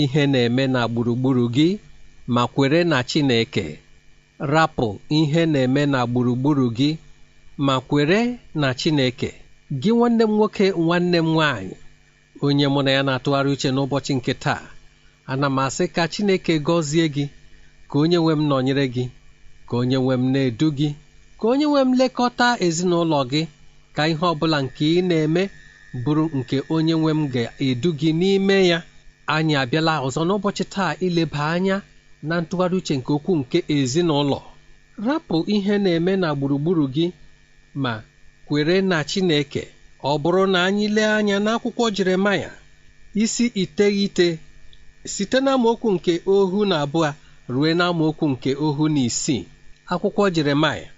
ihe na-eme na gburugburu gị ma kwere na Chineke rapụ ihe na-eme na gburugburu gị ma kwere na Chineke gị nwanne m nwoke nwanne m nwaanyị onye mụ na ya na-atụgharị uche n'ụbọchị nke taa ana m asị ka Chineke gọzie gị ka onye nwe m nọnyere gị ka onye nwe m na-edu gị ka onye nwe m lekọta ezinụlọ gị ka ihe ọ bụla nke ị na-eme bụrụ nke onye nwe m ga-edu gị n'ime ya anyị abịala ọzọ n'ụbọchị taa ileba anya na ntụgharị uche nke okwu nke ezinụlọ rapụ ihe na-eme na gburugburu gị ma kwere na Chineke ọ bụrụ na anyị lee anya n'akwụkwọ Jeremaya isi iteghete site na amaokwu nke ohu na abụọ ruo na nke ohu na isii akwụkwọ Jeremaya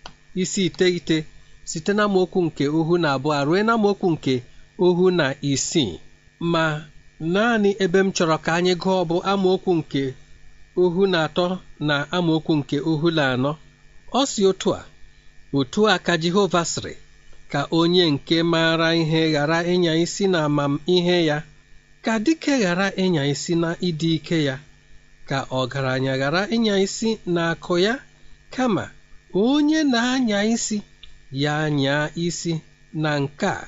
isi iteghete site na amaokwu nke ohu na abụọ ruo na amaokwu nke ohu na isii ma naanị ebe m chọrọ ka anyị gụọ bụ amaokwu nke ohu na atọ na amaokwu nke ohu na anọ ọ si otu a otu a ka Jehova sịrị ka onye nke maara ihe ghara ịnya isi na amamihe ya ka dike ghara ịnya isi na ịdị ike ya ka ọgaranya ghara ịnya isi na akụ ya kama onye na-anya isi ya nyaa isi na nke a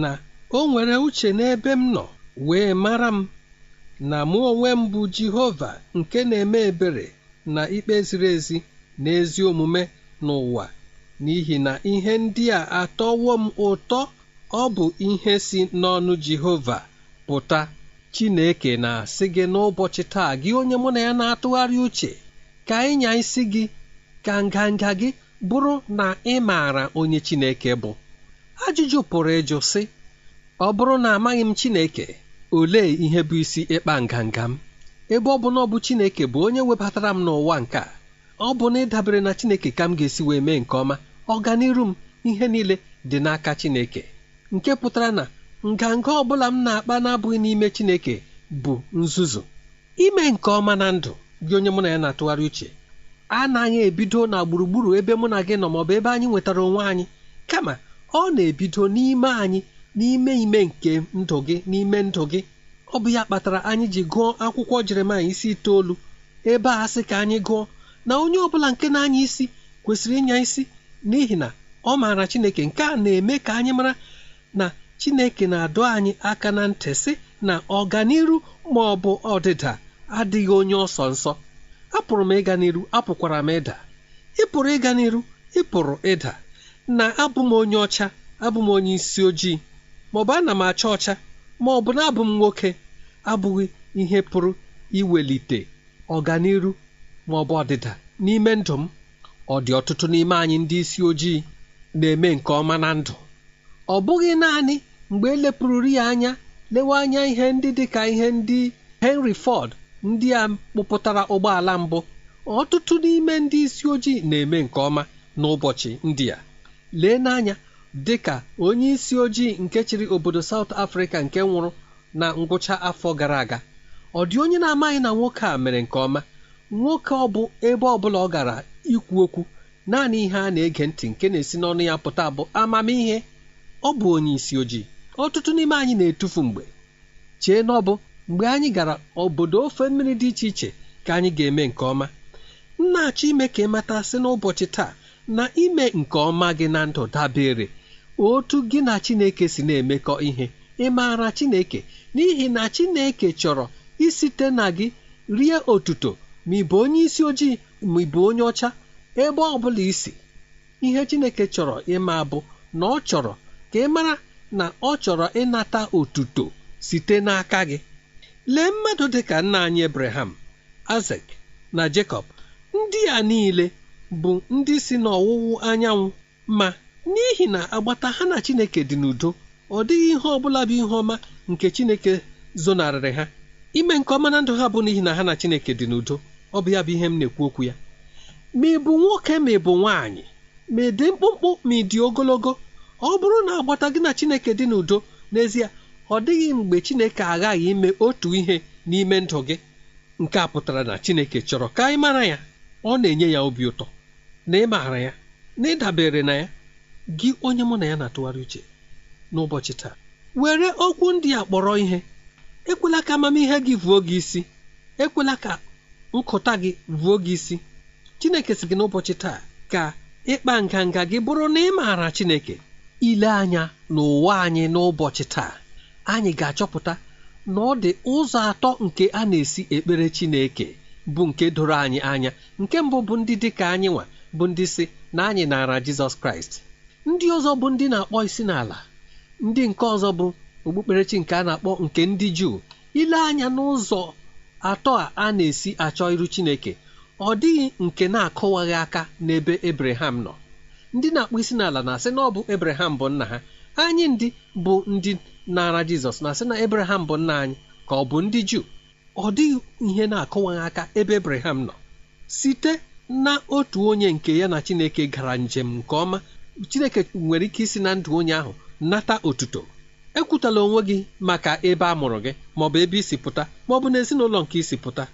na o nwere uche n'ebe m nọ wee mara m na mụ onwe m bụ Jehova nke na-eme ebere na ikpe ziri ezi na ezi omume n'ụwa n'ihi na ihe ndị a atọwo m ụtọ ọ bụ ihe si n'ọnụ Jehova pụta Chineke na-asị gị n'ụbọchị taa gị onye mụ na ya na-atụgharị uche ka ịnya isi gị ka nganga gị bụrụ na ị maara onye Chineke bụ ajụjụ pụrụ ịjụ sị ọ bụrụ na amaghị m Chineke olee ihe bụ isi ịkpa nganga m ebe ọ bụ na ọ bụ Chineke bụ onye webatara m n'ụwa nke a ọ bụ na ịdabere na Chineke ka m ga-esi wee mee nke ọma ọganiru m ihe niile dị n'aka Chineke nke pụtara na nganga ọ bụla m na-akpa na-abụghị n'ime Chineke bụ nzuzu ime nke ọma na ndụ gị onye mụ na ya na-atụgharị uche anaghị ebido na gburugburu ebe mụ na gị nọ maọbụ ebe anyị nwetara onwe anyị kama ọ na-ebido n'ime anyị n'ime ime nke ndụ gị n'ime ndụ gị ọ bụ ya kpatara anyị ji gụọ akwụkwọ jeremaya isi itoolu ebe a sị ka anyị gụọ na onye ọ bụla nke na-anya isi kwesịrị ịnya isi n'ihi na ọ maara chineke nke a na-eme ka anyị mara na chineke na-adọ anyị aka na ntị sị na ọganiru ma ọ bụ ọdịda adịghị onye ọsọ nsọ apụrụ m ịga n'iru apụkwara m ịda ị pụrụ ịga n'iru ị pụrụ ịda na abụ m onye ọcha abụ m onye isi ojii maọbụ ana m acha ọcha ma ọ bụ na abụ m nwoke abụghị ihe pụrụ iwelite ọganiru ma ọ bụ ọdịda n'ime ndụ m ọ dị ọtụtụ n'ime anyị ndị isi ojii na-eme nke ọma na ndụ ọ bụghị naanị mgbe elepụrụrụ ya anya lewe anya ihe ndị dị ka ihe ndị Henry Ford ndị a kpụpụtara ụgbọala mbụ ọtụtụ n'ime ndị isi ojii na-eme nke ọma n'ụbọchị ndị a lee n'anya dị ka onye isi ojii nke chịrị obodo saut afrịka nke nwụrụ na ngwụcha afọ gara aga ọ dị onye na-amaghị na nwoke a mere nke ọma nwoke ọ bụ ebe ọ bụla ọ gara ikwu okwu naanị ihe a na-ege ntị nke na-esi n'ọnụ ya pụta bụ amamihe ọ bụ onye isi ojii ọtụtụ n'ime anyị na-etufu mgbe chee na ọ bụ mgbe anyị gara obodo ofe mmiri dị iche iche ka anyị ga-eme nke ọma nna achọ ime ka ị mata sị n'ụbọchị taa na ime nke ọma gị na ndụ dabere otu gị na chineke si na-emekọ ihe ị maara chineke n'ihi na chineke chọrọ isite na gị rie otuto ma ị bụ onye isi ojii ma ị bụ onye ọcha ebe ọ bụla isi ihe chineke chọrọ ịma bụ na ọ chọrọ ka ị mara na ọ chọrọ ịnata otuto site n'aka gị lee mmadụ dịka nna anyị ebraham azek na jekọb ndị a niile bụ ndị si n'ọwụwụ anyanwụ ma n'ihi na agbata ha na Chineke dị n'udo ọ dịghị ihe ọ bụla bụ ihe ọma nke Chineke zonarịrị ha ime nke ọma na ndụ ha bụ n'ihi na ha na Chineke dị n'udo ọ bụ ya bụ ihe m na-ekwu okwu ya ma ị bụ nwoke ma ị bụ nwaanyị ma ị dị mkpụmkpụ ma ị dị ogologo ọ bụrụ na agbata gị na Chineke dị n'udo n'ezie ọ dịghị mgbe Chineke aghaghị ime otu ihe n'ime ndụ gị nke a pụtara na Chineke chọrọ ka ị mara ya ọ na-enye ya obi ụtọ na ị maara ya na ịdabere na ya gị onye mụ na ya na-atụgharị uche n'ụbọchị taa were okwu ndị a kpọrọ ihe ekwela ka amamihe gị vuo gị isi ekwela ka nkụta gị vuo gị isi Chineke si gị n'ụbọchị taa ka ịkpa nganga gị bụrụ na ị maara Chineke ile anya n'ụwa anyị n'ụbọchị taa anyị ga-achọpụta na ọ dị ụzọ atọ nke a na-esi ekpere Chineke bụ nke doro anyị anya nke mbụ bụ ndị dị ka anyị nwa bụ ndị si na anyị naara Jizọs Kraịst ndị ọzọ bụ ndị na-akpọ isi n'ala ndị nke ọzọ bụ okpukperechi nke a na-akpọ nke ndị juu ile anya n'ụzọ atọ a a na-esi achọ iru chineke ọ dịghị nke na-akụwaghị aka n'ebe ebreham nọ ndị na-akpọ isi n'ala na-asị na ọ bụ ebraham bụ nna ha anyị ndị bụ ndị na-ara jizọs na-asị na ebraham bụ nna anyị ka ọ bụ ndị juu ọ dịghị ihe na-akụwaghị aka ebe ebraham nọ site na otu onye nke ya na chineke gara njem nke ọma chineke nwere ike isi na ndụ onye ahụ nata otuto ekwutala onwe gị maka ebe a mụrụ gị maọbụ ebe isi pụta maọbụ na ezinụlọ nke isi pụta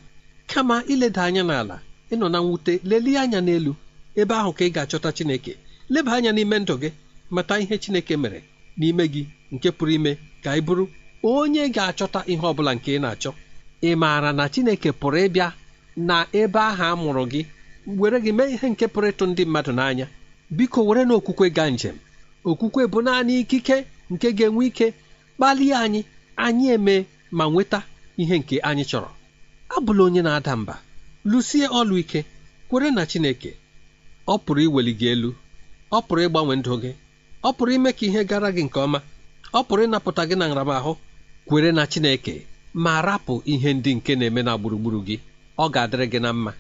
kama ileda anya n'ala ịnọ na mwute lelie anya n'elu ebe ahụ ka ị ga-achọta chineke leba anya n'ime ndụ gị mata ihe chineke mere n'ime gị nke pụrụ ime ka ị bụrụ onye ga-achọta ihe ọ bụla nke ị na-achọ ị maara na chineke pụrụ ịbịa na ebe ahụ a mụrụ gị were gị mee ihe nke pụrụ ịtụ ndị mmadụ n'anya biko were na okwukwe gaa njem okwukwe bụ naanị ikike nke ga-enwe ike kpalie anyị anyị eme ma nweta ihe nke anyị chọrọ abụla onye na-ada mba lụsie ọlụ ike kwere na Chineke ọ pụrụ iweli gị elu ọ pụrụ ịgbanwe ndụ gị ọ pụrụ ime ka ihe gara gị nke ọma ọ pụrụ ịnapụta gị na nramahụ kwere na Chineke ma rapụ ihe ndị nke na-eme na gburugburu gị ọ ga-adịrị gị na mma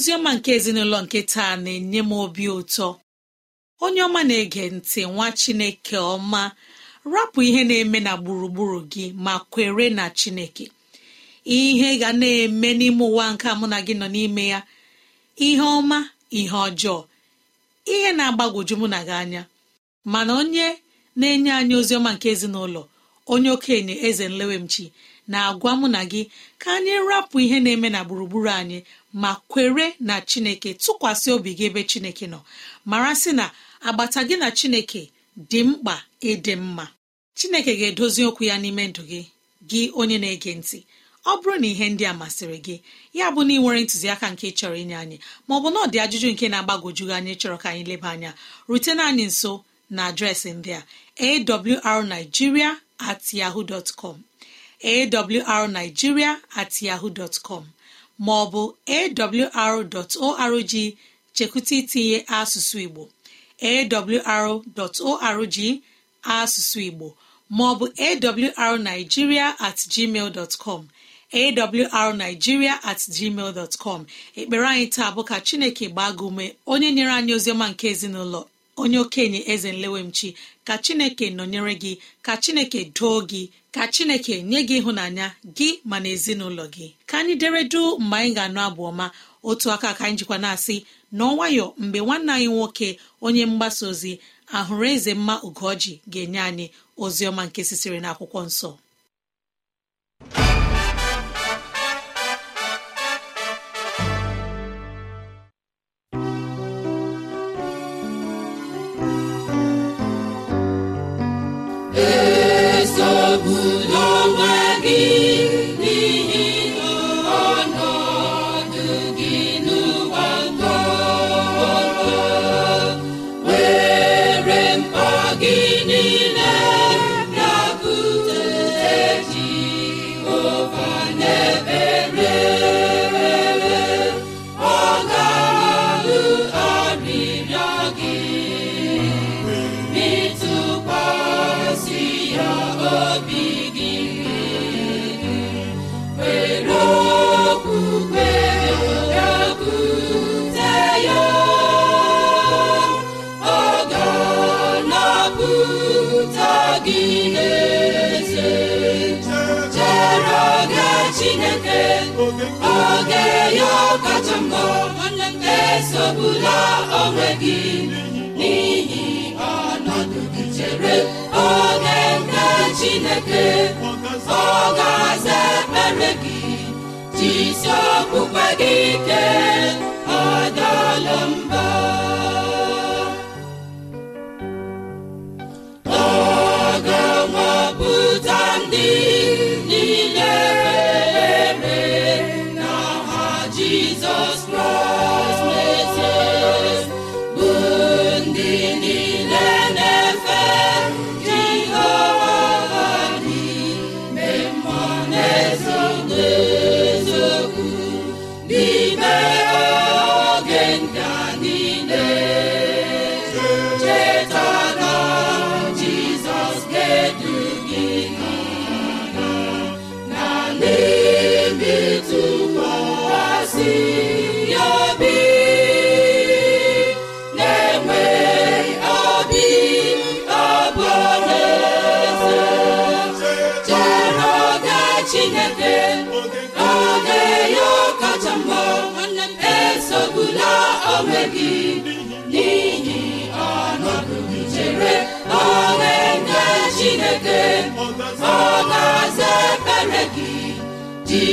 oziọma nke ezinụlọ nke taa na-enye m obi ụtọ onye ọma na-ege ntị nwa chineke ọma rapụ ihe na-eme na gburugburu gị ma kwere na chineke ihe ga na-eme n'ime ụwa nke mụ na gị nọ n'ime ya ihe ọma ihe ọjọọ ihe na-agbagwoju mụ na gị anya mana onye na-enye anyị ozi ọma nke ezinụlọ onye okenye eze nlewemchi na-agwa mụ na gị ka anyị rapụ ihe na-eme na gburugburu anyị ma kwere na chineke tụkwasị obi gị ebe chineke nọ mara sị na agbata gị na chineke dị mkpa ịdị mma chineke ga-edozi okwu ya n'ime ndụ gị gị onye na-ege ntị ọ bụrụ na ihe ndị a masịrị gị ya bụ na ị nwere ntụziaka nke chọrọ inye anyị maọbụ na ọ dị ajụjụ nke na-agbagojugị anyị chọrọ ka anyị leba anya rutena anyị nso na adreesị ndị a awrnigeria at yahoo com awrnigeria at yahoo Ma ọ bụ awr.org chekwụta itinye asụsụ igbo awr.org asụsụ igbo maọbụ awrnigeria at gmail com awrnigeria at com ekpere anyị taa bụ ka chineke gbaa gị ume onye nyere anyị oziọma nke ezinụlọ onye okenye eze nlewemchi ka chineke nọnyere gị ka chineke doo gị ka chineke nye gị ịhụnanya gị mana ezinụlọ gị ka anyị deredu mgbe anyị ga-anụ abụ ọma otu aka ka anyị jikwa na-asị n'ọnwayọ mgbe nwanne anyị nwoke onye mgbasa ozi ahụrụ eze mma ugoji ga-enye anyị ozi ọma nke sisiri na nsọ bụla onwe gị n'ihi ọnọdụ gị chere oge nke Chineke ọ ga-aza ekpere gị jisie okpukpe gị ike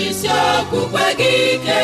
jisi okpukpe gị ike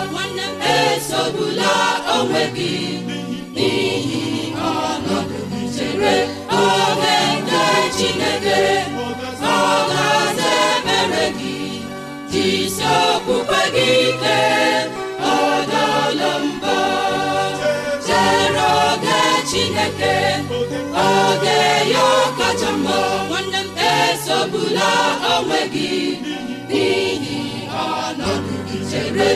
esogbula onwe gị n'ihi ọnọdụ chere oge nke Chineke ọ ga-aza ebere gị jisi okpukpe gị ike ọ dọọla mbọ chere oge Chineke oge ya kacha mma esogbula onwe gị n'ihi chere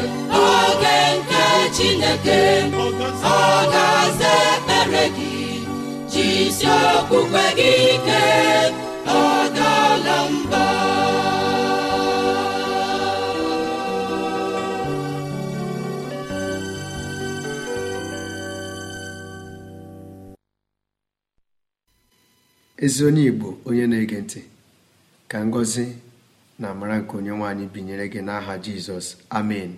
ezi onye Igbo onye na-ege ntị ka ngọzi na amara nke onye nwaanyị binyere gị n'aha jizọs amen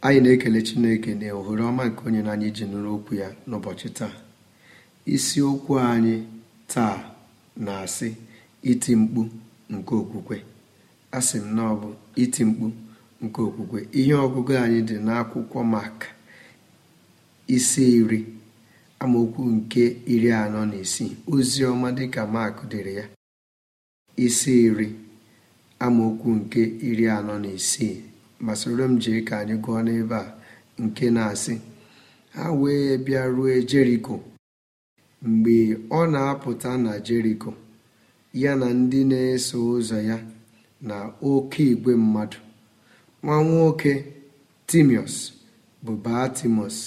anyị na-ekele chineke na ohere ọma nke onye na anyị ji nụrụ okwu ya n'ụbọchị taa isiokwu anyị taa na-asị iti mkpu nke okwukwe asị m na ọ iti mkpu nke okwukwe ihe ọgụgụ anyị dị n'akwụkwọ mak isi iri amaokwu nke iri anọ na isii ozi ọma dịka mak dịrị ya isi iri amaokwu nke iri anọ na isii ma soro m jee ka anyị gụọ n'ebe a nke na-asị ha wee bịa rue jeriko mgbe ọ na-apụta na jeriko ya na ndị na-eso ụzọ ya na oke igwe mmadụ nwa nwoke timios bụ batimiọs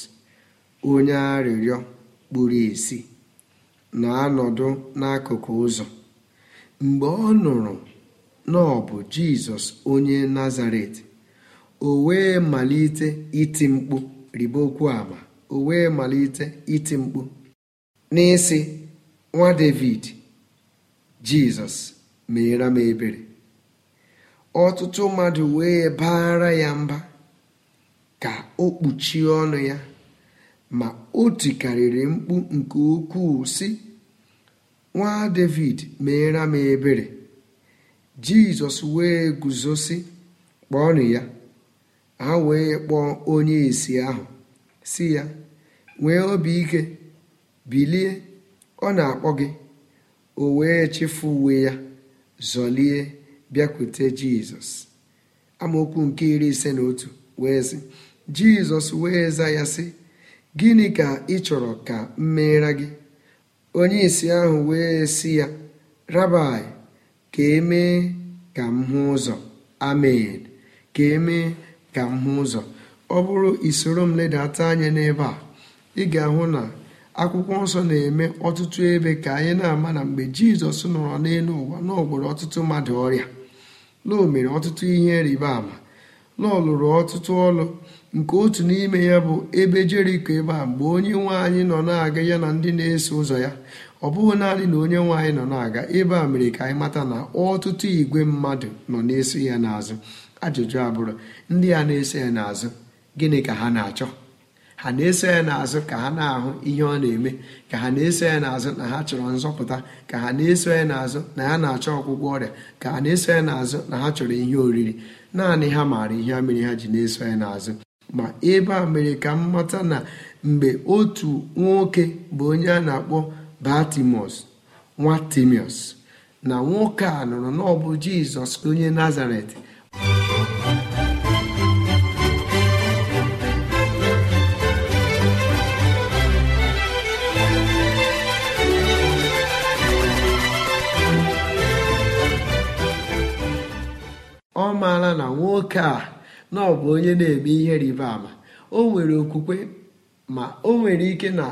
onye arịrịọ kpuru isi na-anọdụ n'akụkụ ụzọ mgbe ọ nụrụ na ọ bụ jizọs onye nazaret o wee malite iti mkpu riba okwu ama o wee malite iti mkpu n'isi nwa david jizọs meere m ebere ọtụtụ mmadụ wee baara ya mba ka o kpuchie ọnụ ya ma o tikarịrị mkpu nke ukwuu sị nwa david meere m ebere jizọs wee guzosi kpọọnụ ya ha wee kpọọ onye isi ahụ si ya nwee obi ike bilie ọ na-akpọ gị o wee chefu uwe ya zọlie bịakwute jizọs amaokwu nke iri ise na otu wee sị jizọs wee za ya sị gịnị ka ị chọrọ ka m meere gị onye isi ahụ wee si ya rabai ka emee ka m hụ ụzọ amen ka emee ka m hụ ụzọ ọ bụrụ isoro m ledata anya n'ebe a ị ga-ahụ na akwụkwọ nsọ na-eme ọtụtụ ebe ka anyị na-ama na mgbe jizọs nọrọ n'elu ụwa na ọtụtụ mmadụ ọrịa lọ mere ọtụtụ ihe rịba ama lọọ lụrụ ọtụtụ ọlụ nke otu n'ime ya bụ ebe jeriko ebe a mgbe onye nwe anyị nọ na-aga ya na ndị na-eso ụzọ ya ọ bụghị naanị na onye nwe anyị nọ na-aga ebe a mere ka anyị mata na ọtụtụ igwe mmadụ nọ na-eso ya n'azụ ajụjụ abụrụ ndị a na-eso ya n'azụ gịnị ka ha na-achọ ha na-eso ya n'azụ ka ha na-ahụ ihe ọ na-eme ka ha na-eso ya n'azụ na ha chọrọ nzọpụta ka ha na-eso ya n'azụ na ha na-achọ ọgwụgwọ ọrịa ka ha na-eso ya n'azụ na ha chọrọ ihe oriri naanị ha maara ihe mere ha ji na-eso ya n'azụ ma ebe a mere ka m mata na mgbe otu nwoke bụ onye a na-akpọ batimọs nwa na nwoke a nụrụ n'ọbụ jizọs onye nazaret ọ maara na nwoke a na onye na-eme ihe rịba ama o nwere okwukwe ma o nwere ike na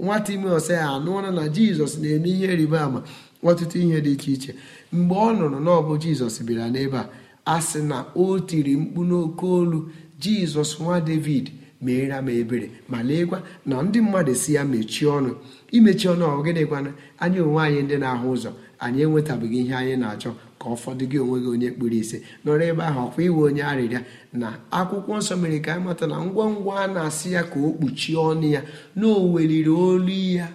ime timoth ya anụọla na jizọs na-eme ihe rịba ama ọtụtụ ihe dị iche iche mgbe ọ nụrụ na ọ bụ jizọs bịara n'ebe a a sị na o tiri mkpu n'oke olu jizọs nwa david meere m ebere ma leekwa na ndị mmadụ si ya mechie ọnụ imechi ọnụ ọgịnịkwana anyị onwe anyị ndị na-ahụ ụzọ anyị enwetabeghị ihe anyị na-achọ ka ụfọdụ gị onwe gị onye kpuru ise nọrọ ebe ahụ ọkwa iwe onye arịrịa na akwụkwọ nsọ mere ka amata mata na ngwa ngwa a na-asị ya ka o kpuchie ọnụ ya na o weliri olu ya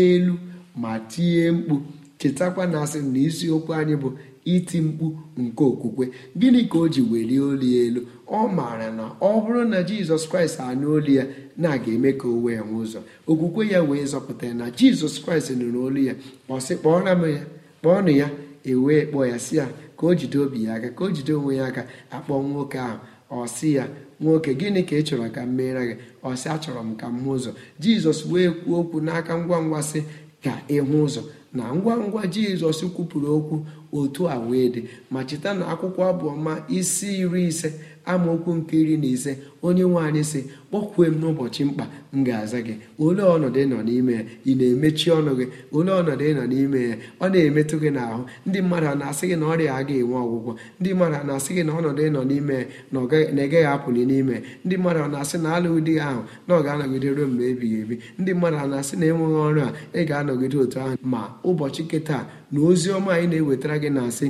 elu ma tinye mkpu chetakwa na asị na isiokwu anyị bụ iti mkpu nke okwukwe gịnị ka o ji welie olu elu ọ maara na ọ bụrụ na jizọs kraịst anụ olu ya na aga eme ka o wee nwee ụzọ okwukwe ya wee zọpụta ya na jizọs kraịst nụrụ olu ya ọ sị kpọọra m ya kpọọnụ ya ewee kpọọ ya si ya ka o jide obi ya aka ka o jide onwe ya aka akpọ nwoke ahụ ọ si ya nwoke gịnị ka ị chọrọ ka m meere gị ọ si achọrọ m ka m hụ ụzọ jizọs wee kwuo okwu n'aka ngwa ngwa sị ka ị hụ ụzọ na ngwa ngwa jizọs kwupụrụ okwu otu a wee dị ma cheta na akwụkwọ abụọma isi iri ise amaokwu nke iri na ise onye nwe sị kpọkwue m n'ụbọchị mkpa m ga-aza gị ole ọnọdụ ịnọ n'ime ya ị na-emechi ọnụ gị ole ọnọdụ ịnọ n'ime ya ọ na-emetụ gị n'ahụ ndị mmadụ a na-asị gị na ọrịa ga enwe ọgwụgwọ ndị mmadụ a na-asị gị na ọnọdụ ịnọ n'ime ya na na-egaghị apụli n'ime ya ndị mmadụ a na-asị na alụghị di ahụ na ọ ga-anọgide ruo mgbe ebighị ebi ndị mmadụ a na-asị na enweghị ọrụ a ị ga-anọgide otu ahụ ma ụbọchị nke na ozi ọma anyị na-ewetara gị na-asị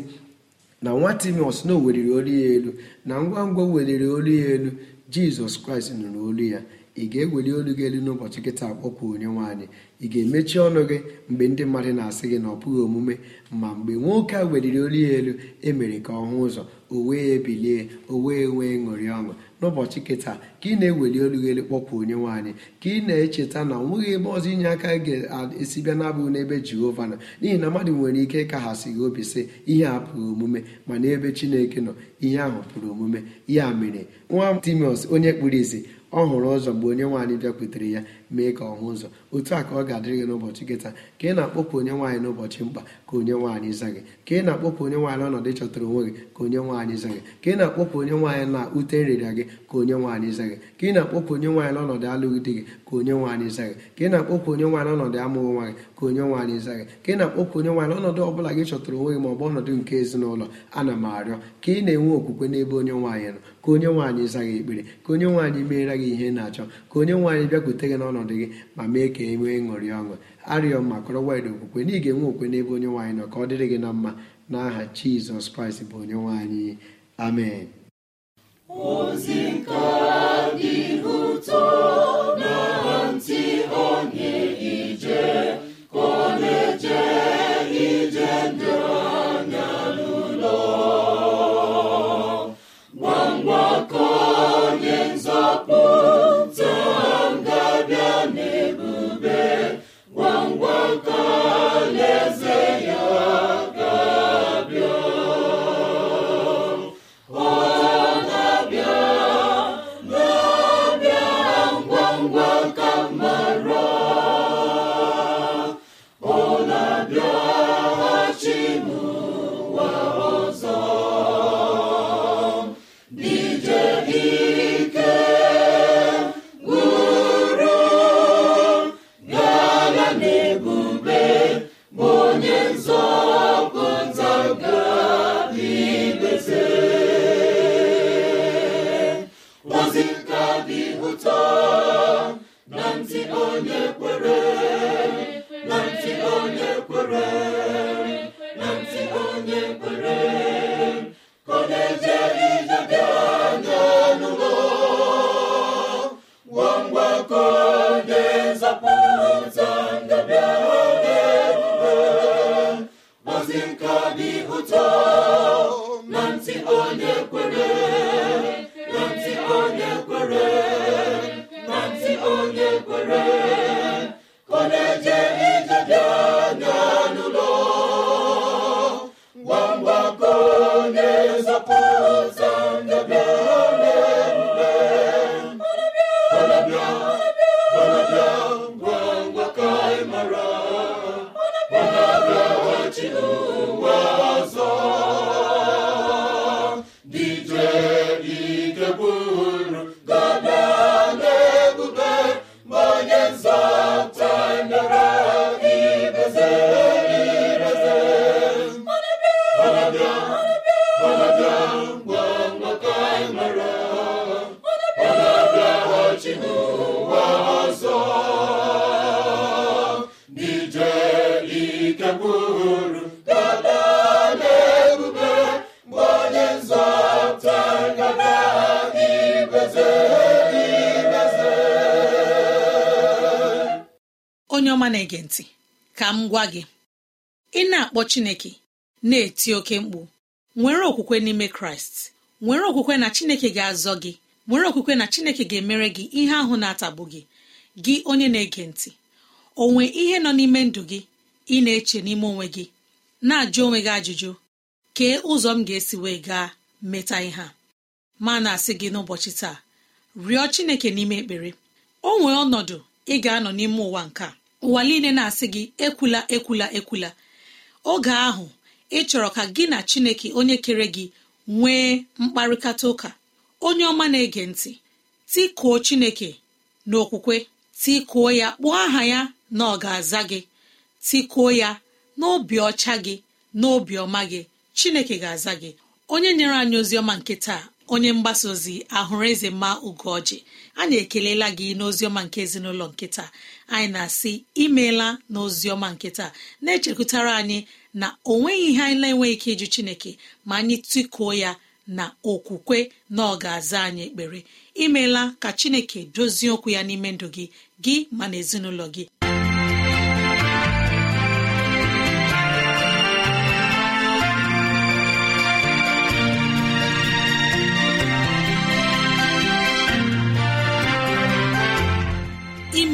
na nwa timios na o weliri olu ya elu na ngwa ngwa weliri olu ya elu jizọs kraịst nụrụ olu ya ị ga-eweli olu gị elu n'ụbọchị nkịta akpọpụ onye nwaanyị ị ga-emechi ọnụ gị mgbe ndị mmadụ na-asị gị na ọ bụghị omume ma mgbe nwoke a weliri olu ya elu emere ka ọ hụ ụzọ o wee bilie o wee nwee ṅụrị ọṅụ n'ụbọchị kịta ka ị na-eweli olu kpọkwa onye nwanyị ka ị na-echeta na ọ ebe ọzọ inye aka ga-esi bịa na-abụghị n'ebe jehova nọ n'ihi na mmadụ nwere ike ịkaghasị gị obi sị ihe a pụrụ omume mana ebe chineke nọ ihe ahụ pụrụ omume ya mere nwa timios onye kpuru isi ọ hụrụ ụzọ mgbe onye nwaanyị bịakwutere ya mee ka ọ hụ ụzọ otu a ka ọ ga-adịrị gị n'ụbọchị gị taa ka ị na-akpọkwu onye nwaanyị n'ụbọchị mkpa ka onye nwaanyị za gị ka ị na-akpọkwu onye nwaanyị ọnọdụ chọtara onwe gị ka onye nwaanyị za gị ka ị na-akpọkwu onye nwaanyị na ute nrịrịa gị ka onye nwaanyị za gị ka ị na-akpọkwu onye nwaanyị n'ọnọdụ alụghị di gị ka onye nwaanyị za gị ka ị na akpọpụ onye nwaanyị ọnọdụ amụghị nwa gị ka onye nwaanyị za gị ka ị na-akpọkwu onye nwaanyị n'ọnọdụ ọ bụla gị chọtara onwe gị ma ọ bụ ọnọdụ nke ezinụlọ ana m arịọ ka ị na-enwe okwukwe n'ebe onye nwaanyị nọ ka onye nwaanyị za gị ekpere ka onye nwaanyị meere gị ihe na-achọ ka onye nwaanyị bịakwute gị n'ọnọdụ ọnọdụ gị ma mee ka e nwee ṅụrị ọṅụ arịọ ma kọrọ wide okwukwe na ị enwe okwe n'ebe onye nwaanyị nọ ka ọ dịrị gị na mma n'aha jizọs kraịst bụ onye nwaanyị amen ozi bụ chineke na-eti oke mkpu nwere okwukwe n'ime kraịst nwere okwukwe na chineke ga-azọ gị nwere okwukwe na chineke ga-emere gị ihe ahụ na-atagbu gị gị onye na-ege ntị onwe ihe nọ n'ime ndụ gị ị na-eche n'ime onwe gị na-ajụ onwe gị ajụjụ kee ụzọ m ga-esi wee gaa meta ihe a ma na-asị gị n'ụbọchị taa rịọ chineke n'ime ekpere o nwee ọnọdụ ị ga-anọ n'ime ụwa nke ụwa niile na-asị gị ekwula ekwula ekwula oge ahụ ị chọrọ ka gị na chineke onye kere gị nwee mkparịkata ụka onye ọma na-ege ntị tikuo chineke n'okwukwe tikuo ya kpụọ aha ya na ọ ga-aza gị tikuo ya n'obi ọcha gị n'obi ọma gị chineke ga-aza gị onye nyere anyị ozi ọma nke taa onye mgbasa ozi ahụrụ eze mma ugoji anyị ekelela gị n'oziọma nke ezinụlọ nkịta anyị na-asị imeela ọma nkịta na-echekwutara anyị na ọ nweghị ihe anyị na-enweghị ike ịjụ chineke ma anyị tịkuo ya na okwukwe na ọ ga-aza anyị ekpere imeela ka chineke dozie okwu ya n'ime ndụ gị gị ma na ezinụlọ gị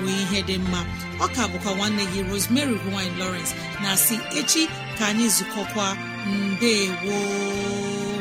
bụ ihe dị mma ọka bụkwa nwanne gị Rosemary gine lowrence na si echi ka anyị zukọkwa mbe gboo